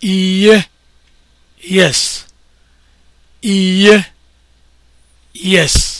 iye yes iye yes